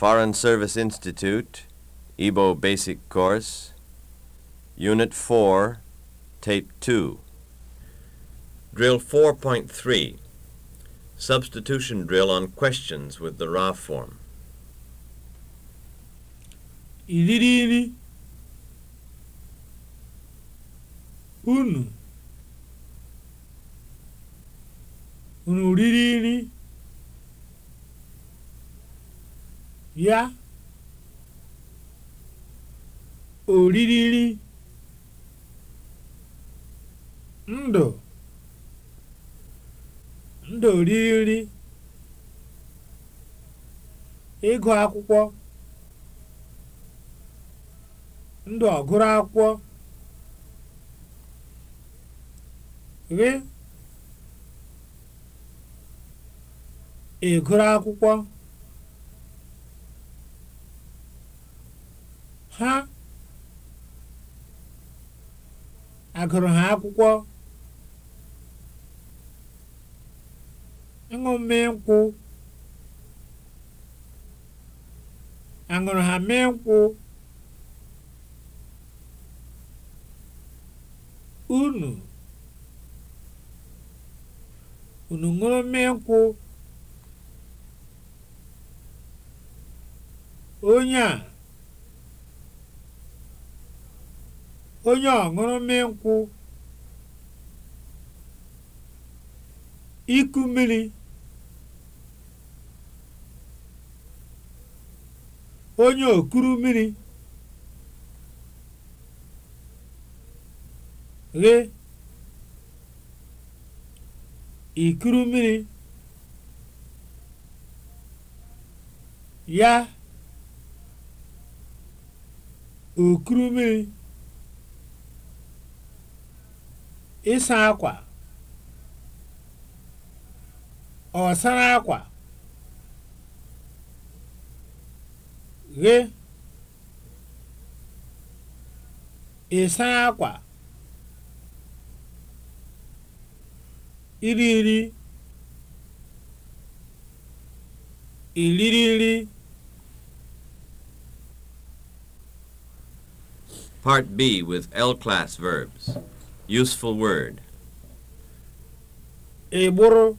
Foreign Service Institute, Igbo Basic Course, Unit 4, Tape 2. Drill 4.3 Substitution drill on questions with the raw form. Iriri Unu Unu ya oririri ndụ ndụ ịgụ akwụkwọ ndụ ọgụrụ akwụkwọ gị ịgụrụ akwụkwọ ha agụrụ ha akwụkwọ ịṅụ nkwụ aṅụrụ ha mee nkwụ unu unu ṅụrụ mee nkwụ onye a onye ọṅụrụ nkwụ iku mmiri onye okuru mmiri ghe ikuru mmiri ya okuru mmiri ịsa akwa ọ akwa ghe ịsa akwa iri nri iriri nri Part B with L class verbs. Useful word. Egboro.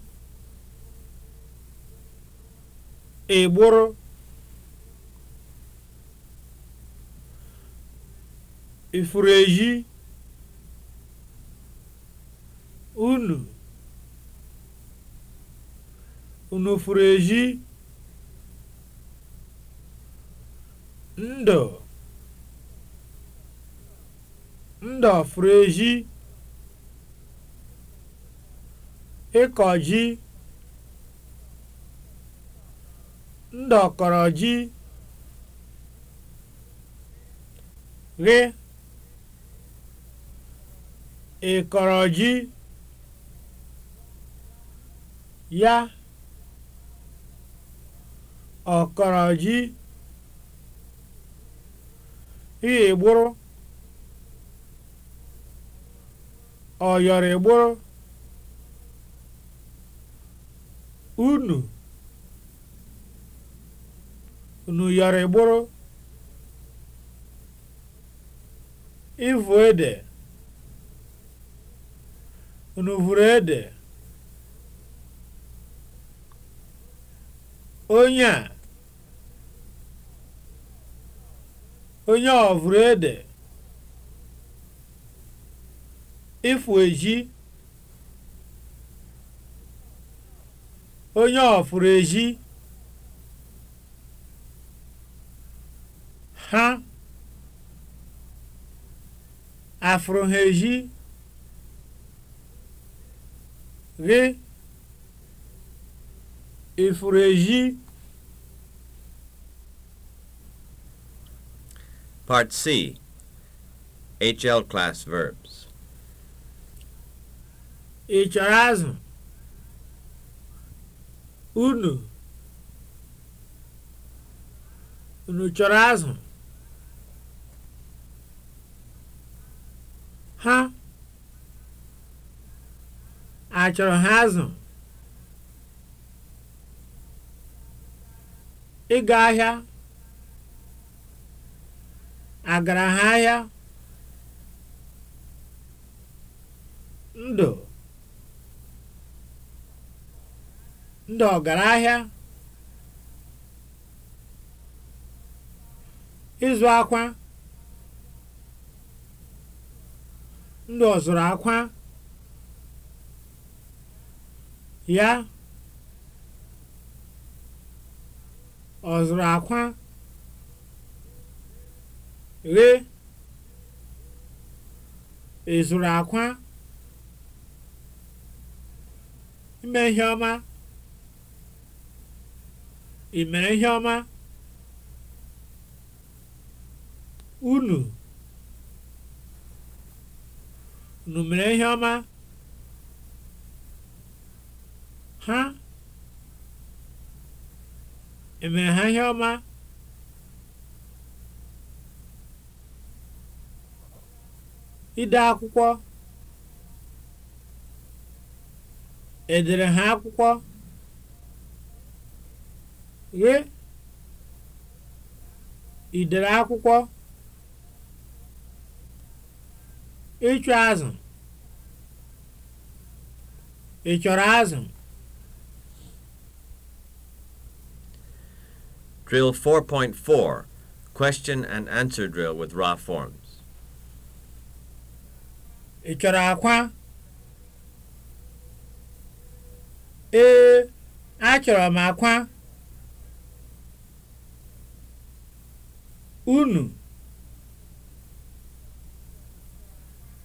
Egboro. Ifuru Unu. Unu furu ndo Ndụ. Ndụ ịkọ ji ndọkọrọ ji ghe ịkọrọ ya ọkọrọ ji ihe ọyọrọ igburu. unu unu yọrọ ịgbụrụ ede unu vụrụ ede onye a ede ịfụ eji onye ọfụrụ ezi- ha afụrụ ha eji gị ịfụrụ eji Part C HL class verbs. Ị chọrọ azụ? unu unu chọrọ azụ ha achọrọ ha azụ ịga ahịa agara ha ahịa ndụ ndị ahịa ịzụ akwa ndị ọzụrụ akwa ya ọzụrụ akwa ghe ịzụrụ akwa ime ihe ọma ị mere ihe ọma unu unu mere ihe ọma ha emere ha ihe ọma ide akwụkwọ edere ha akwụkwọ ghị ị dere akwụkwọ ịchụ azụ ị chọrọ azụ Drill 4.4 Question and answer drill with raw forms. Ị chọrọ akwa? Ee, achọrọ m akwa. unu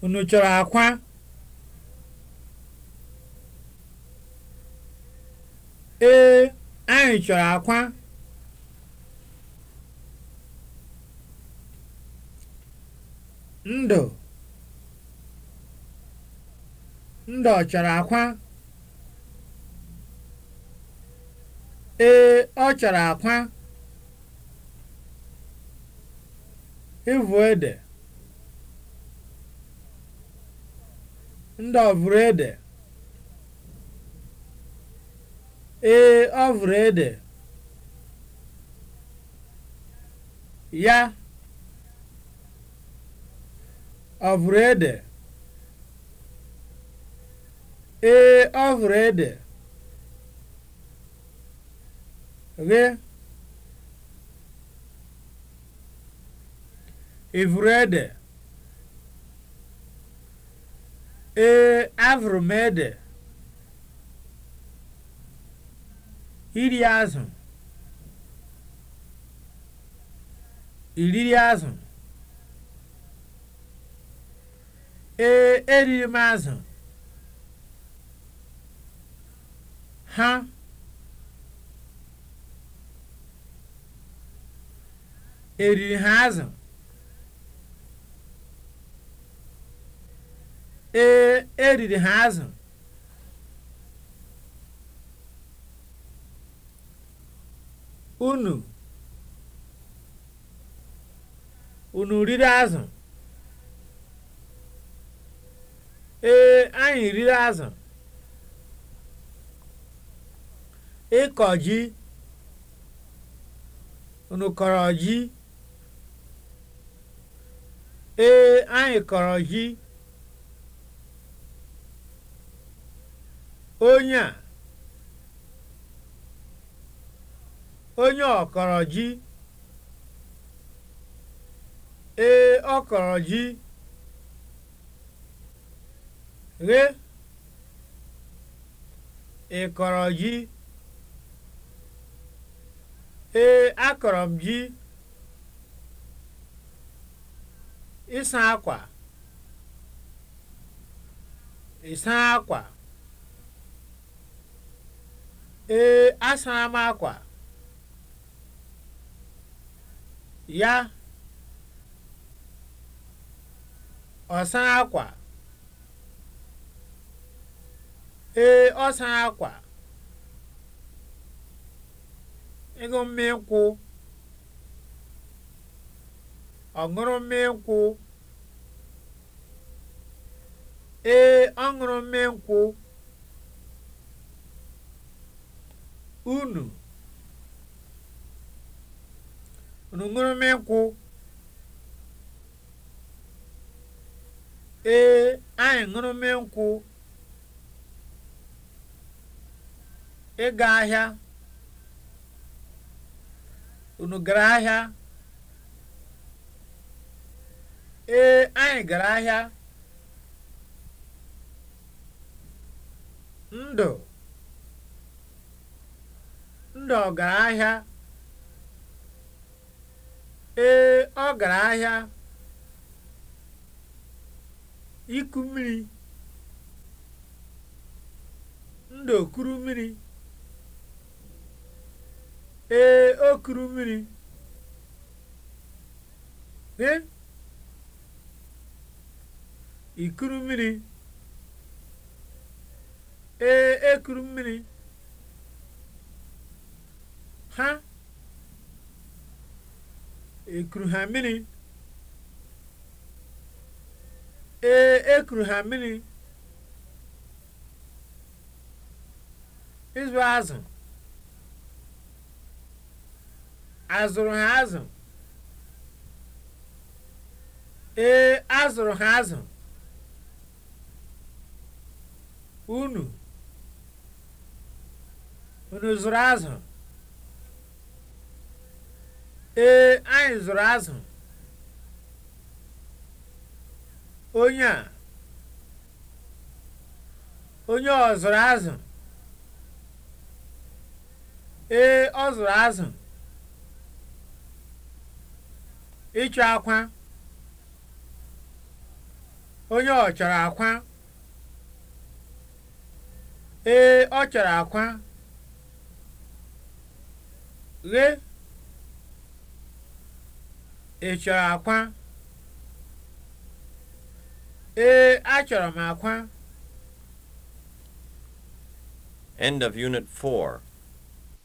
unu chọrọ akwa ee anyị chọrọ akwa ndụ ndụ ọ chọrọ akwa ee ọ chọrọ akwa Ivu ede ndị ọvụrụ ede ee ọvụrụ ede ya ọvụrụ ede ee ọvụrụ ede ghe ịvụrụ ede ee avụrụ m ede iri azụ iriri azụ ee eriri m azụ ha eriri ha azụ ee eriri ha azụ unu unu riri azụ ee anyị riri azụ ịkọ ji unu kọrọ ji ee anyị kọrọ ji onye a onye ọkọrọ ji ee ọkọrọ ji ghe ị ji ee akọrọ m ji ịsa akwa ịsa ee asara m akwa ya ọ akwa ee ọ sara akwa ịṅụ mmiri nkwụ ọ ṅụrụ mmiri nkwụ ee ọ ṅụrụ mmiri nkwụ unu unu nkwụ ee anyi ṅụrụ nkwụ ịga ahịa unu gara ahịa ee anyị gara ahịa ndụ ndị ọgaranya ee ahịa iku mmiri ndị okuru mmiri ee okuru mmiri e ikuru mmiri ee ekuru mmiri ha ekuru ha mmiri ee ekuru ha mmiri ịzụ azụ azụrụ ha azụ ee azụrụ ha azụ unu unu zụrụ azụ ee anyị zụrụ azụ onye a onye ọ zụrụ azụ ee ọ zụrụ azụ ịchọ akwa onye ọ chọrọ akwa ee ọ chọrọ akwa ghee Ị chọrọ akwa? Ee, achọrọ m akwa. End of Unit 4